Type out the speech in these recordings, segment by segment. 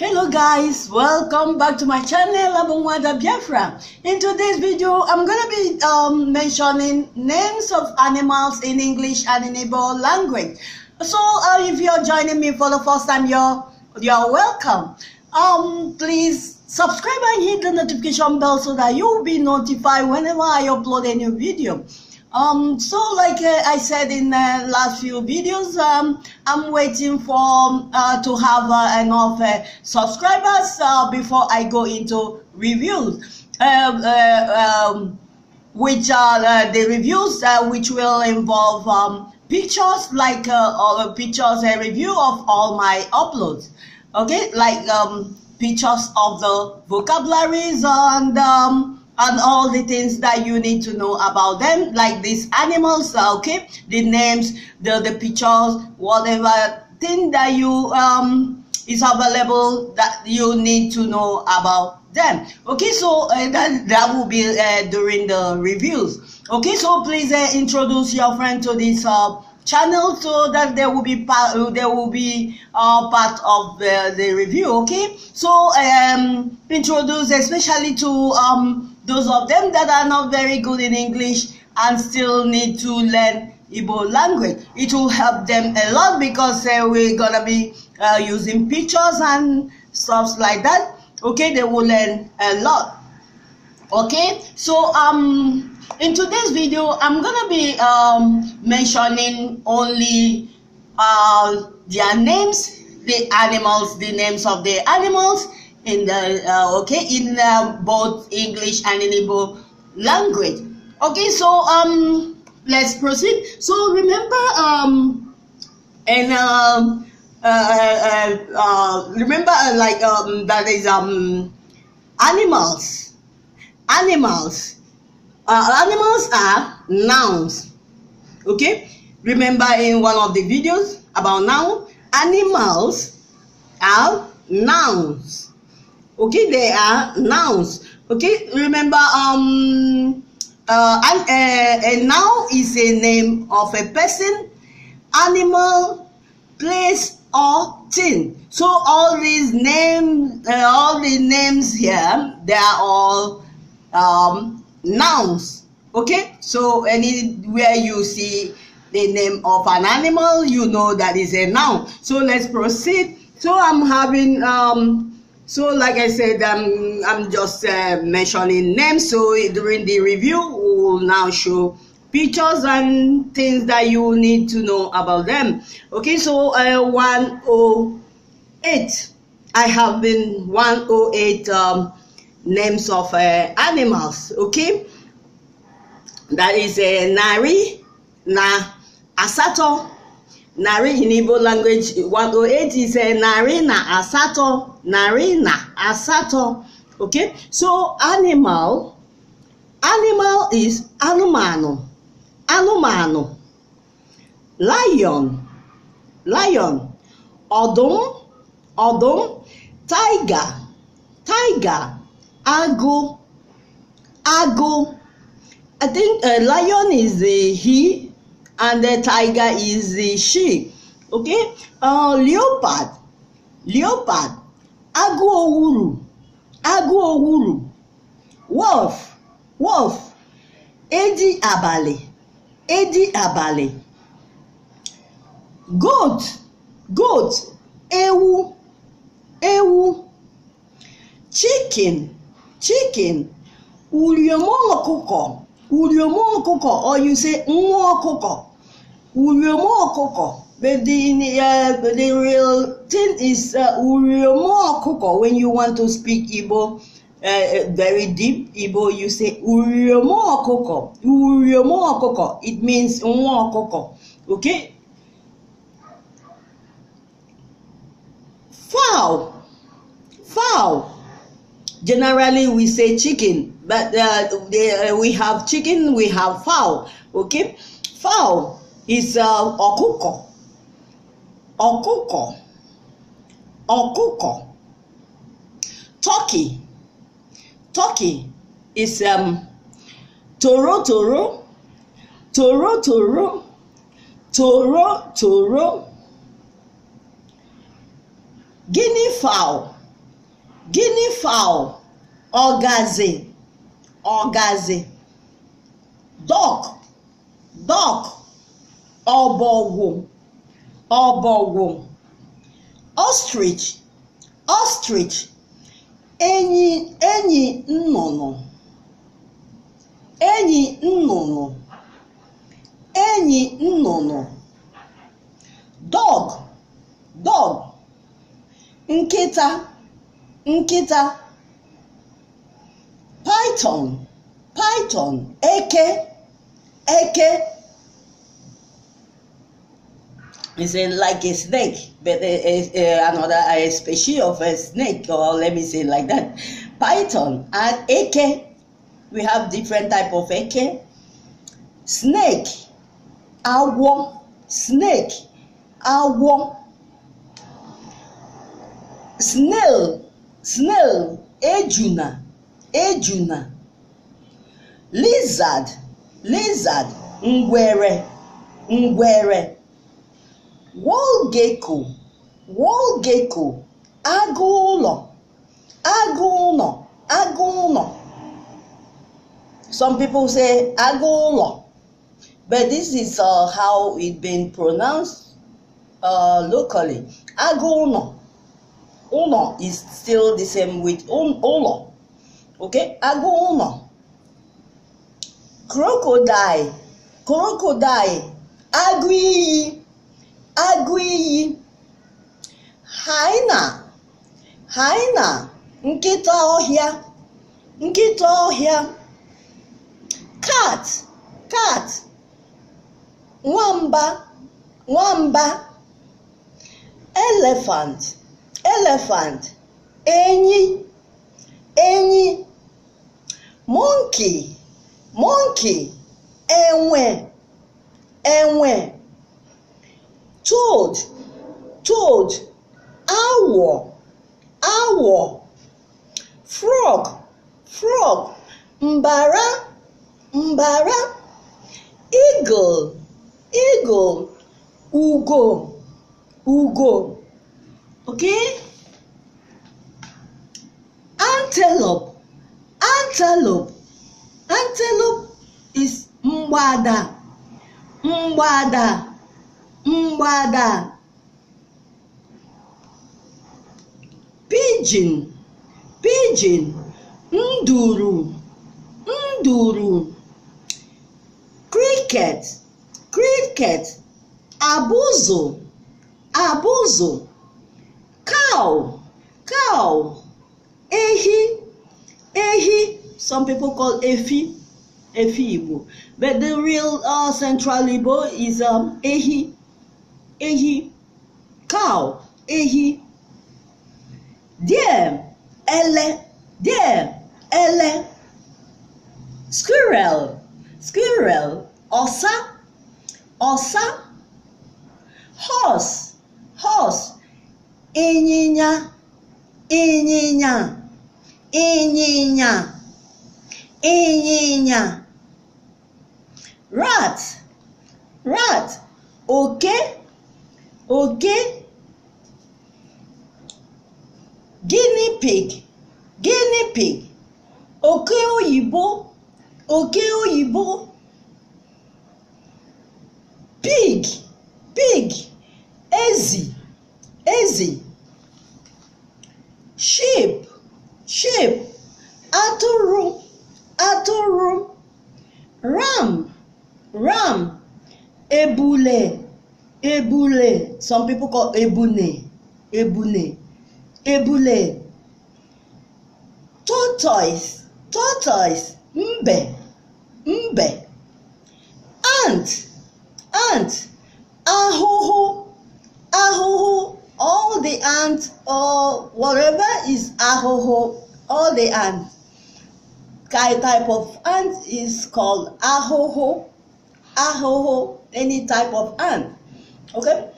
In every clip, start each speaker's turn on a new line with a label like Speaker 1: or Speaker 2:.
Speaker 1: hello guys welcome back to my channel Abumwada Biafra in today's video I'm gonna be um, mentioning names of animals in English and in Igbo language so uh, if you're joining me for the first time you're you're welcome um please subscribe and hit the notification bell so that you'll be notified whenever I upload a new video um, so like uh, I said in the last few videos, um, I'm waiting for uh, to have uh, enough uh, subscribers uh, before I go into reviews, uh, um, which are the reviews which will involve um, pictures like uh, pictures a review of all my uploads. Okay, like um, pictures of the vocabularies and um, and all the things that you need to know about them, like these animals, okay, the names, the, the pictures, whatever thing that you um, is available that you need to know about them. Okay, so uh, that, that will be uh, during the reviews. Okay, so please uh, introduce your friend to this uh, channel so that they will be part they will be uh, part of the, uh, the review okay so um introduce especially to um those of them that are not very good in English and still need to learn Igbo language. It will help them a lot because uh, we're gonna be uh, using pictures and stuff like that. Okay, they will learn a lot. Okay, so um, in today's video, I'm gonna be um, mentioning only uh, their names, the animals, the names of the animals, in the uh, okay in uh, both English and in Igbo language. Okay, so um, let's proceed. So remember um, and um, uh, uh, uh, uh remember uh, like um, that is um, animals, animals. animals are nouns. Okay, remember in one of the videos about noun, animals are nouns okay they are nouns okay remember um uh, and, uh, a noun is a name of a person animal place or thing so all these names uh, all the names here they are all um, nouns okay so anywhere you see the name of an animal you know that is a noun so let's proceed so i'm having um so, like I said, um, I'm just uh, mentioning names. So, during the review, we will now show pictures and things that you need to know about them. Okay, so uh, 108. I have been 108 um, names of uh, animals. Okay, that is a uh, Nari, Na Asato, narị in Igbo language 108 is uh, narị na asatọ narị na asatọ okay so animal animal is anụmanụ anụmanụ lion lion ọdụm ọdụm tiger tiger ago, ago. i think uh, lion is a he and the tiger is the sheep okay uh, leopard leopard agụ owuru wolf wolf edi abalị edi abalị goat goat ewu ewu chicken chicken uriom ọkụkọ uriom ọkụkọ or you say nwa ọkụkọ ụrịọma but the uh, the real thing is ụrịọma uh, when you want to speak Igbo uh, very deep Igbo you say ụrịọma ọkụkọ it means nwa ọkụkọ okay fowl fowl generally we say chicken but uh, they, uh, we have chicken we have fowl okay fowl is uh, ọkụkọ ọkụkọ ọkụkọ turkey turkey is um, toro toro toro toro toro toro guinea fowl guinea fowl ọgazi ọgazi duck duck ọbọgwụ ọbọgwụ ostrich ostrich enyi enyi nnụnụ enyi nnụnụ enyi nnụnụ dog dog nkịta nkịta python python eke eke It's like a snake, but another a species of a snake, or let me say like that, python and eke. We have different type of eke, snake, awo, snake, awo, snail, snail, ejuna, ejuna, lizard, lizard, ngwere, ngwere wall gecko wall gecko agụ ụlọ agụ some people say agulo but this is uh, how it been pronounced uh, locally agụ ụlọ is still the same with ụlọ okay agụ crocodile crocodile agui. agụ iyi hyena hyena nkịta ọhịa nkịta ọhịa cat cat nwamba nwamba elephant elephant enyi enyi monkey monkey enwe enwe toad toad owl, owl, frog frog mbara mbara eagle eagle ugo ugo okay antelope antelope antelope is mgbada mgbada mgbada pijin pijin nduru nduru cricket cricket abụzụ abụzụ cow cow ehi ehi some people call efi efi igbo but the real uh, central igbo is um, ehi ehi cow ehi deer ele deer ele squirrel squirrel ọ̀sá ọ̀sá horse horse ịnyịnya ịnyịnya ịnyịnya ịnyịnya rat rat oke okay? oge guinea pig oke oyibo oke oyibo Some people call ebune, ebune, ebule, tortoise, tortoise, mbe, mbe, ant, ant, ahụhụ, ahụhụ, all the ants or whatever is ahụhụ, all the ants. Kind type of ant is called ahụhụ, ahụhụ, any type of ant. Okay?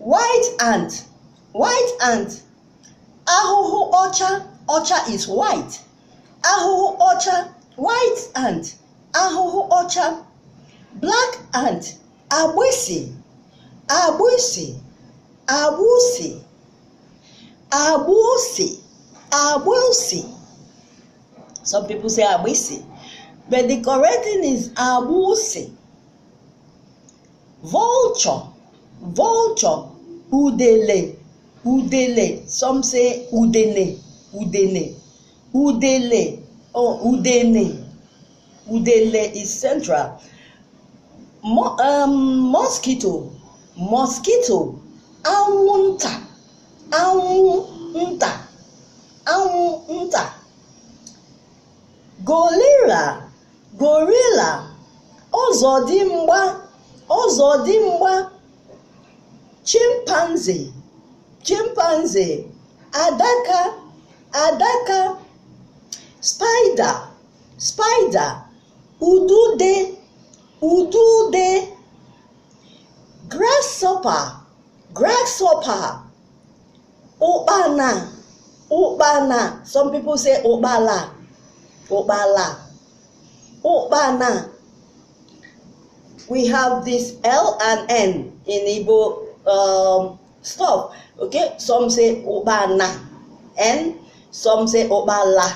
Speaker 1: White ant, white ant. Ahụhụ ọcha, ọcha is white. Ahụhụ ọcha, white ant. Ahụhụ ọcha. Black ant, abusi, abusi, abusi, abusi, abusi. Some people say abusi, but the correct thing is abusi. Vulture, vulture. udele udele some say udene udene udele oh udene udele is central Mo um, mosquito mosquito anwụnta anwụnta anwụnta gorilla gorilla ọzọdimgba mgba chimpanzee chimpanzee adaka adaka spider spider udude udude grasshopper grasshopper ukpana ukpana some people say ukpala ukpala ukpana we have this l and n in igbo um, stuff. Okay, some say Obana, and some say Obala,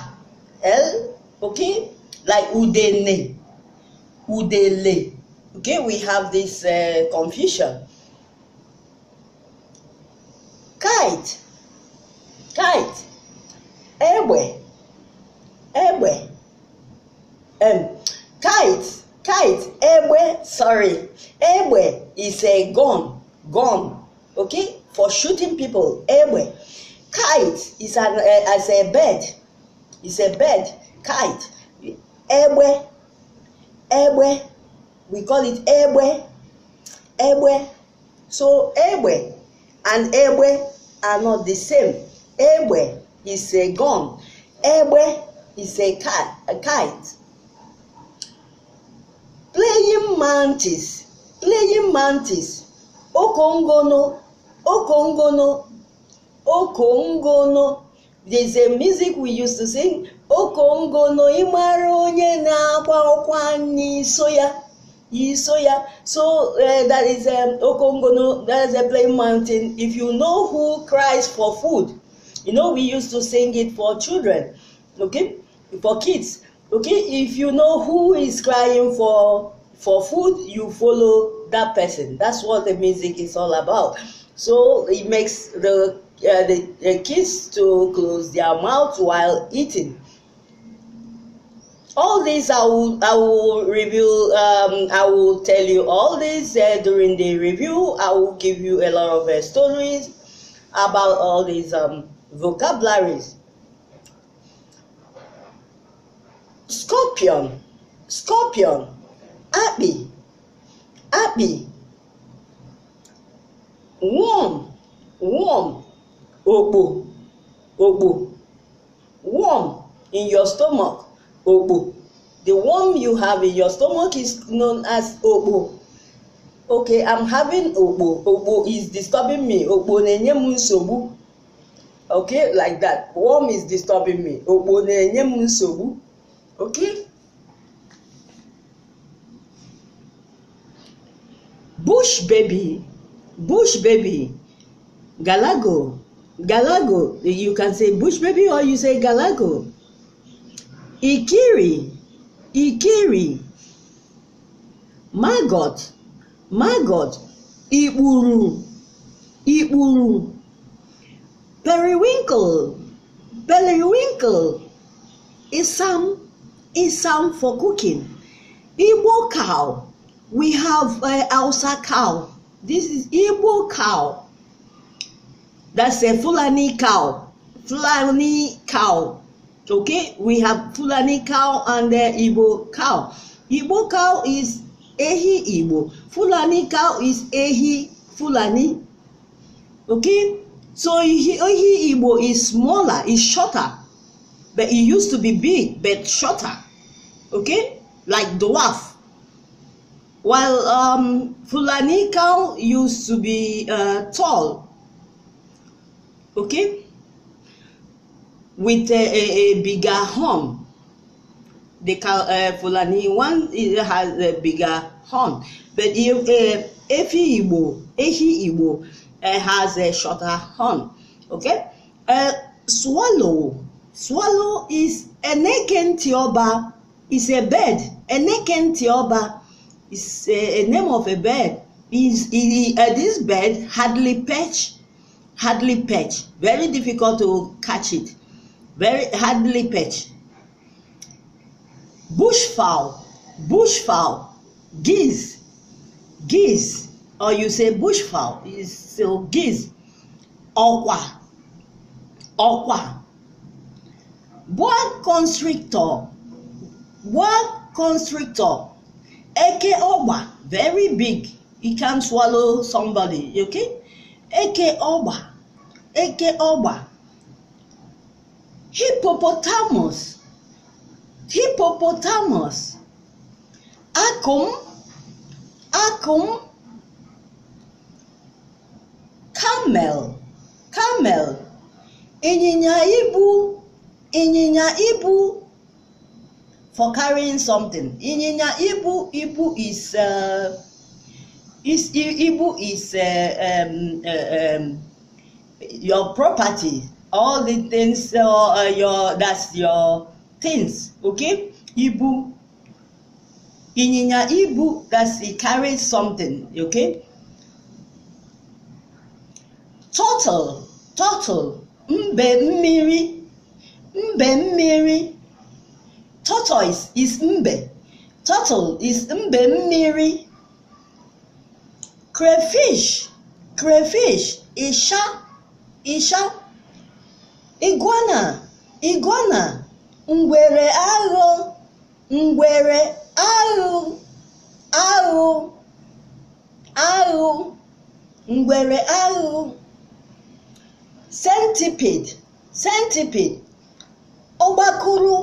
Speaker 1: L, okay, like Udene, Udele. Okay, we have this uh, confusion. Kite, kite, Ewe, Ewe, um, kite, kite, Ewe, sorry, Ewe is a gun. gun, okay, for shooting people. Ewe. Kite is, an, uh, eh, is a bird. is a bird. Kite. Ewe. Ewe. We call it Ewe. Ewe. So Ewe and Ewe are not the same. Ewe is a gun. Ewe is a, cat, a kite. Playing mantis. Playing mantis Okongono, Okongono, Okongono. There's a music we used to sing. Okongono imara onye na-agba soya, n'iso ya. So uh, that is um, Okongono, that is a plain mountain. If you know who cries for food, you know we used to sing it for children, okay? For kids. Okay, if you know who is crying for for food, you follow that person. That's what the music is all about. So it makes the uh, the, the kids to close their mouth while eating. All this I will I will review. Um, I will tell you all this uh, during the review. I will give you a lot of uh, stories about all these um, vocabularies. Scorpion, scorpion, happy, happy warm warm òpò òpò warm in your stomach òpò the warm you have in your stomach is known as òpò okay i'm having òpò òpò is disturbing me òpò na-enye m nsogbu okay like that warm is disturbing me òkpo na-enye m nsogbu okay bush baby bush baby galago galago you can say bush baby or you say galago ikiri ikiri magot magot ikpuru ikpuru periwinkle periwinkle Is some, is some for cooking igbo cow We have uh, Elsa cow. This is Igbo cow. That's a Fulani cow. Fulani cow. Okay, we have Fulani cow and the Igbo cow. Igbo cow is Ehi Igbo. Fulani cow is Ehi Fulani. Okay, so Ehi Igbo is smaller, is shorter. But it used to be big, but shorter. Okay, like dwarf. While um, Fulani cow used to be uh, tall, okay, with a, a, a bigger horn. The cow, uh, Fulani one has a bigger horn, but if uh, Igbo, Ehi Igbo uh, has a shorter horn, okay. Uh, swallow, swallow is a tioba is a bird, a tioba. is a, eh, a name of a bird. Is uh, this bird hardly perch? Hardly perch. Very difficult to catch it. Very hardly perch. Bushfowl, bushfowl, geese, geese, or you say bushfowl is so geese. Ọ̀kwà, ọ̀kwà. Boa constrictor, boa constrictor. Eke Oba, very big. He can swallow somebody, okay? Eke Oba, Eke Oba. Hippopotamus, hippopotamus. Akum, akum. Camel, camel. Ịnyịnya ibu, ịnyịnya ibu. for carrying something. Ịnyịnya ibu ibu is uh, is ibu is uh, um, uh, um, your property. All the things uh, uh your that's your things. Okay, ibu. Ịnyịnya ibu that's he carries something. Okay. Total total, mbe mmiri, mbe mmiri. tortoise is mbe turtle is mbe mmiri crayfish crayfish isha isha iguana ngwere aghụ centipede centipede ọgbakụrụ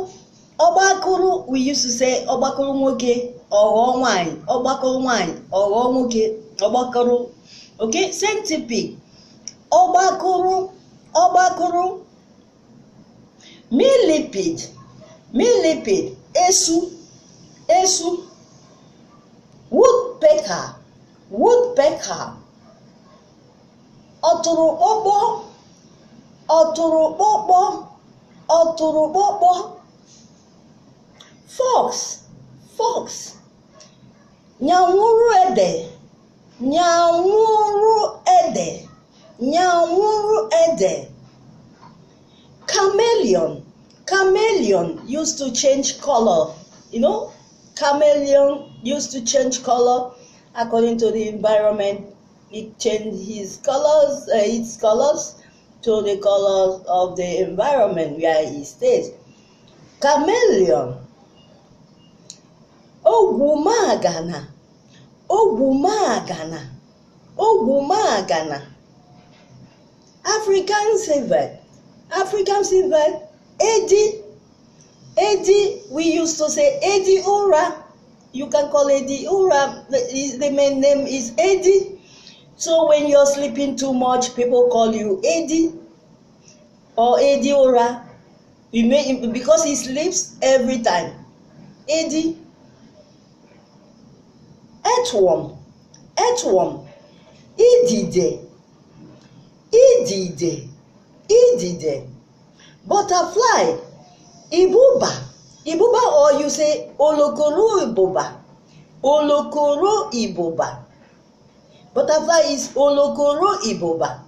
Speaker 1: ọgbakụrụ we say ọgbakụrụ nwoke ọghọọ nwanyị ọgbakụrụ nwanyị nwoke ọgbakụrụ ok same ọgbakụrụ ọgbakụrụ millipede millipede esu esu woodpecker woodpecker ọtụrụkpọkpọ ọtụrụkpọkpọ ọtụrụkpọkpọ fox fox nyamuru ede nyamuru ede nyamuru ede chameleon chameleon used to change color you know chameleon used to change color according to the environment it changed his colors uh, its colors to the colors of the environment where he stays chameleon Ogwumagana, Ogwumagana, Ogwumagana. African silver, African silver, Eddie, Eddie, we used to say Eddie Ura. You can call Eddie Ura, the, the main name is Eddie. So when you're sleeping too much, people call you Eddie or Eddie Ura. You may, because he sleeps every time. Eddie earthworm earthworm idide idide idide butterfly ibuba ibuba or you say olokoro ibuba olokoro ibuba butterfly is olokoro ibuba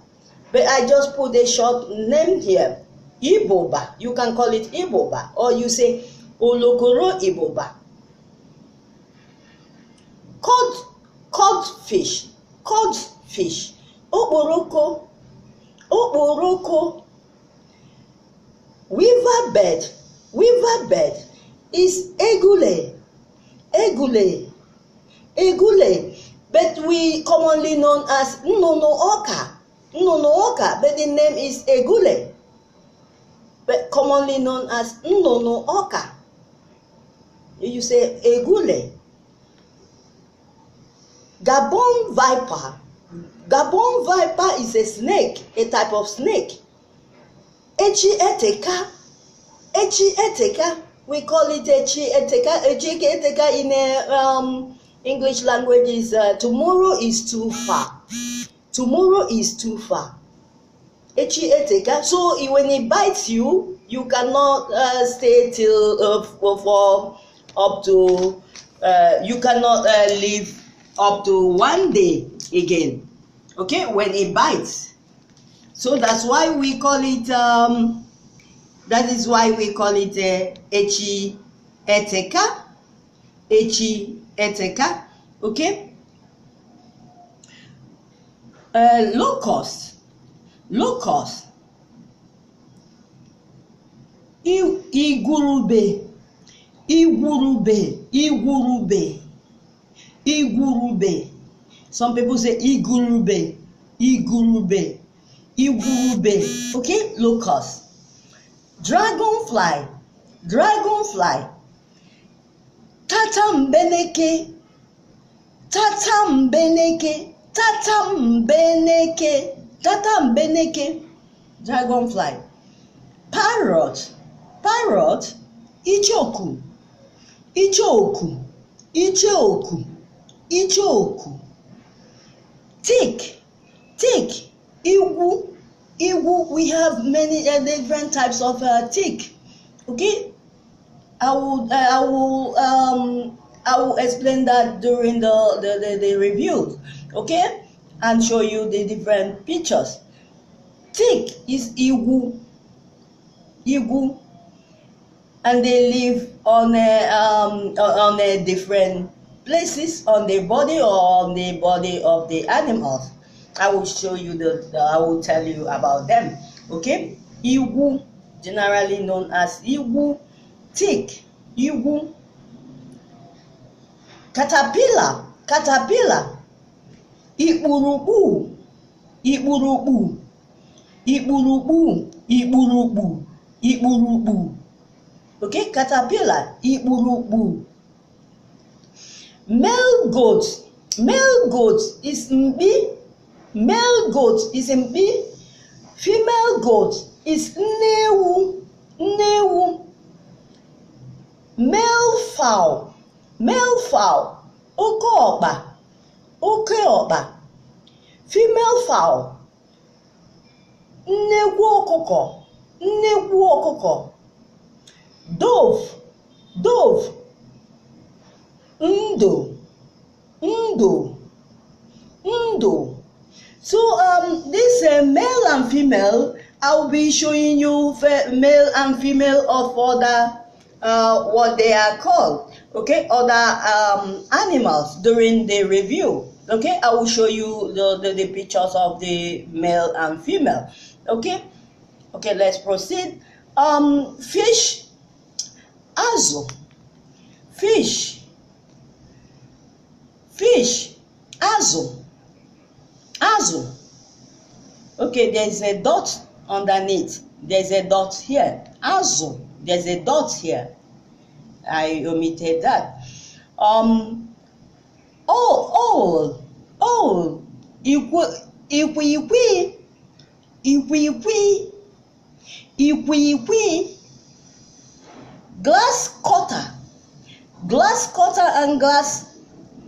Speaker 1: but I just put a short name here iboba you can call it iboba or you say olokoro iboba cod cod fish, cod fish. okporoko okporoko weaver bed, weaver bed, is egule egule egule but we commonly known as nnụnụ ọka nnụnụ ọka but the name is egule but commonly known as nnụnụ ọka you say egule. Gabon viper. Gabon viper is a snake, a type of snake. Echieteka. Echieteka. We call it Echieteka. Echieteka in a, uh, um, English language is uh, tomorrow is too far. Tomorrow is too far. Echieteka. So when it bites you, you cannot uh, stay till uh, for up to uh, you cannot uh, live up to one day again okay when it bites so that's why we call it um that is why we call it uh, eteka echi eteka okay uh, low cost low cost igwurube igwurube igwurube igwurube some people say igurube igurube igurube okay locust dragonfly dragonfly tatambeneke tatambeneke tatambeneke tatambeneke dragonfly parrot parrot ichoku ichoku ichoku ichoku tick tick Igu, igu. we have many uh, different types of uh, tick okay i will uh, i will um i will explain that during the the, the, the review okay and show you the different pictures tick is igu, igu, and they live on a um on a different places on the body or on the body of the animals. I will show you the, the I will tell you about them. Okay? Igu, generally known as Igu tick, Igu caterpillar, caterpillar, ikpurukpu, ikpurukpu, ikpurukpu, ikpurukpu, ikpurukpu. Okay, caterpillar, ikpurukpu. Male goat. Male goat is mbi. Male goat is mbi. Female goat is nnewu. Nnewu. Male fowl. Male fowl. Oke ọkpa. Oke ọkpa. Female fowl. Nnekwu ọkụkọ. Nnekwu ọkụkọ. Dove. Undo, undo, undo. So um, this uh, male and female, I'll be showing you male and female of other uh, what they are called, okay, other um, animals during the review. Okay, I will show you the, the, the pictures of the male and female. Okay, okay, let's proceed. Um, fish, azu, fish, fish azụ azụ okay there's a dot underneath there's a dot here azụ there's a dot here I omitted that um Oh, oh, all all all ikwikwii ikwikwii ikwikwii glass cutter glass cutter and glass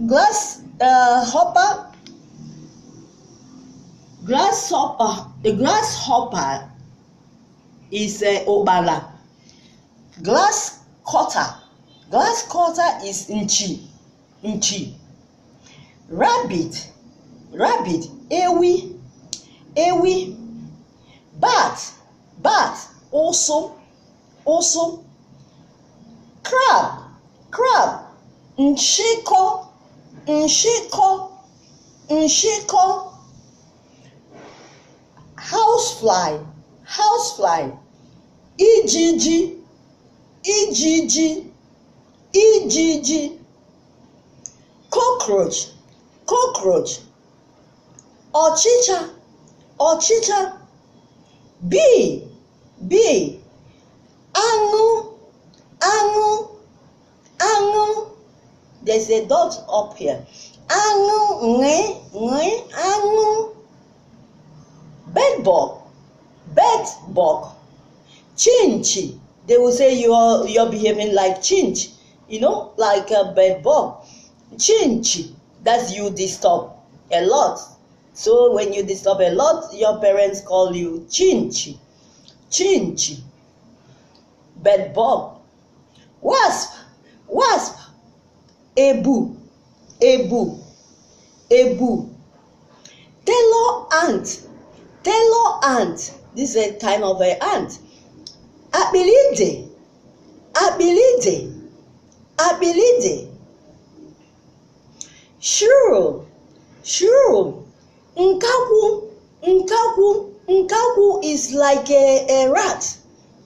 Speaker 1: Grass, uh, hopper, grasshopper, the grasshopper is a uh, obala. Glass cutter, glass cutter is inchi, inchi. Rabbit, rabbit, ewi, ewi. Bat, bat, also, also. Crab, crab, nchiko, nshịkọ nshịkọ housefly housefly ijiji ijiji ijiji cockroach cockroach ọchịcha ọchịcha bee bee There's a dot up here. Anu, nge, nge, anu. bed bug chinchi. They will say you are you're behaving like chinch, you know, like a bed bug. Chinchi, that's you disturb a lot. So when you disturb a lot, your parents call you chinchi, chinchi, bug, wasp, wasp. ebu ebu ebu tailor ant tailor ant this is a kind of a ant akpịlịde akpịlịde akpịlịde shrew shrew nkakwu nkakwu nkakwu is like a, a rat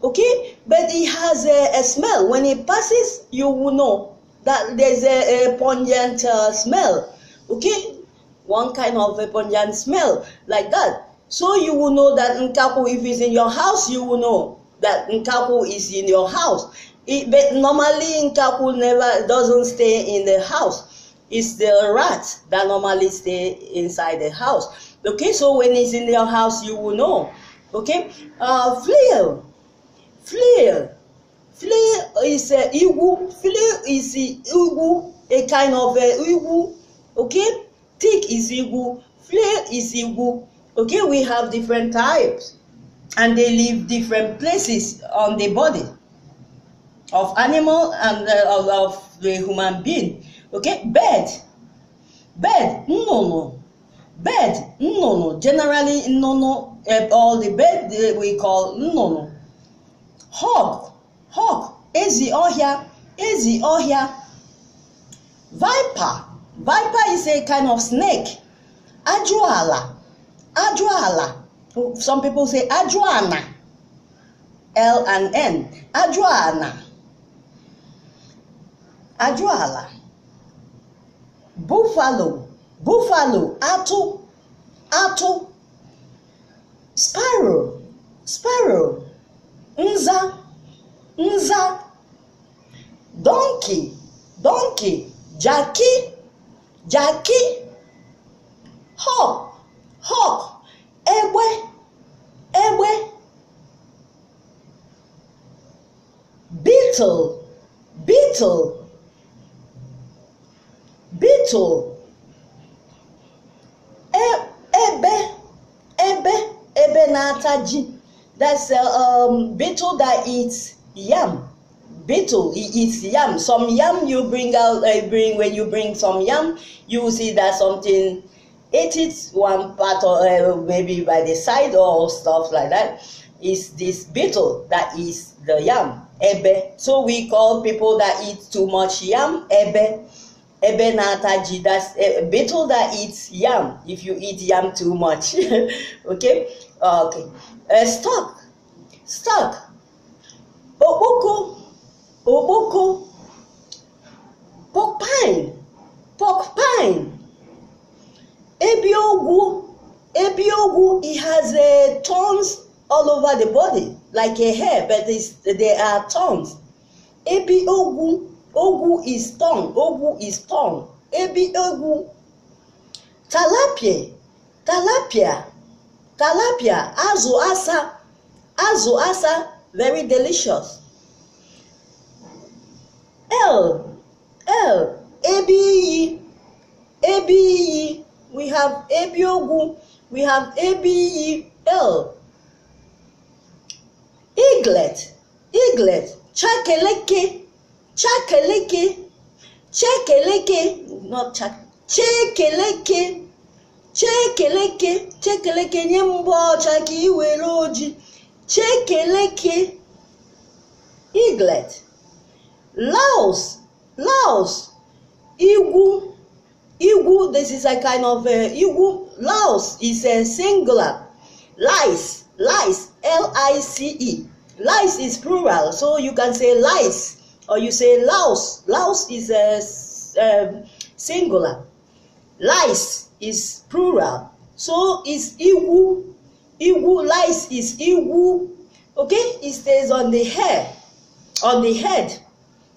Speaker 1: okay but it has a, a smell when it passes you will know that there's a, a pungent uh, smell okay one kind of a pungent smell like that so you will know that nkaku if it's in your house you will know that nkaku is in your house it, but normally nkaku never doesn't stay in the house it's the rats that normally stay inside the house okay so when it's in your house you will know okay uh flail flail Flea is a uh, igu. Flea is igu, a kind of a uh, igu. Okay, tick is igu. Flea is igu. Okay, we have different types, and they live different places on the body of animal and uh, of, of the human being. Okay, bird, bird, no, no, bird, no, no. Generally, no, no. Uh, all the bird we call no, no. Hawk, hawk ezi ọhịa ezi ọhịa viper viper is a kind of snake ajụala ajụala some people say ajụana l and n ajụana ajụala buffalo buffalo atụ atụ sparrow sparrow Unza. nza donkey donkey jackie, jackie, hawk hawk egbe egbe beetle beetle beetle e, ebe ebe ebe na-ata ji that's a uh, um, beetle that eats yam beetle eats yam some yam you bring out uh, bring when you bring some yam you will see that something ate one part or uh, maybe by the side or stuff like that is this beetle that is the yam ebe so we call people that eat too much yam ebe ebe nataji that's a eh, beetle that eats yam if you eat yam too much okay okay uh, stock stock Okpoko, okpoko, pork pine, pork pine. Ebiogwu, ebiogwu, it has a uh, thorns all over the body, like a hair, but there are thorns. Ebiogwu, ogwu is thorn, ogwu is thorn. Ebiogwu. Talapia, talapia, talapia, azụ asa, azụ asa very delicious. L L A A B E, Ebiyi E. we have A B O G U. we have A B E L Eaglet Eaglet Chakeleke Chakeleke Chekeleke not Chak Chekeleke Chekeleke Chekeleke nye mbọ ọcha ka ị were oji Chekeleke Iglet Laos Laos Igu Igu this is a kind of a uh, Igu Laos is a singular lice lice L-I-C-E lice is plural so you can say lice or you say Laos Laos is a um, singular lice is plural so is Igu Igu lies his igu, okay, it stays on the hair, on the head,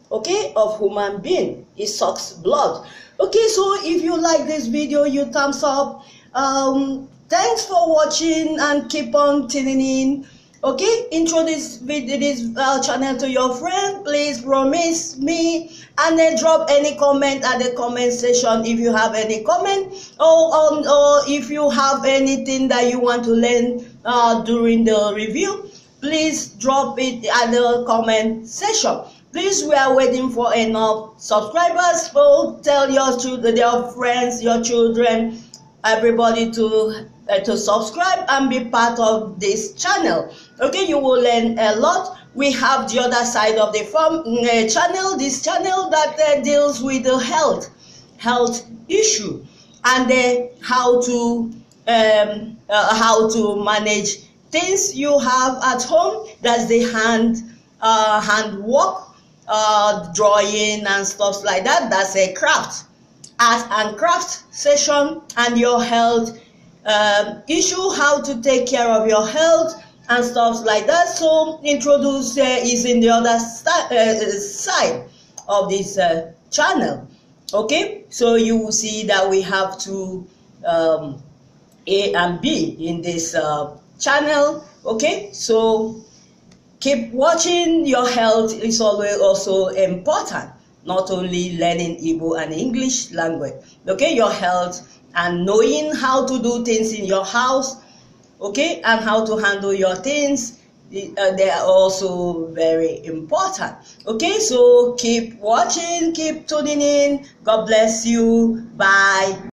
Speaker 1: okay, of human being. It sucks blood. Okay, so if you like this video, you thumbs up. Um, thanks for watching and keep on tuning in. okay introduce this this uh, channel to your friend please promise me and then drop any comment at the comment section if you have any comment or um, or if you have anything that you want to learn uh, during the review please drop it at the comment section please we are waiting for enough subscribers so tell your children your friends your children everybody to uh, to subscribe and be part of this channel okay you will learn a lot we have the other side of the form uh, mm, eh, channel this channel that uh, deals with the health health issue and eh, how to um, uh, how to manage things you have at home that's the hand uh, hand work uh, drawing and stuff like that that's a craft art and craft session and your health um, issue how to take care of your health and stuff like that. So introduce uh, is in the other uh, side of this uh, channel. Okay, so you will see that we have two um, A and B in this uh, channel. Okay, so keep watching. Your health is always also important. Not only learning Igbo and English language. Okay, your health and knowing how to do things in your house okay, and how to handle your things. Uh, they are also very important. Okay, so keep watching, keep tuning in. God bless you. Bye.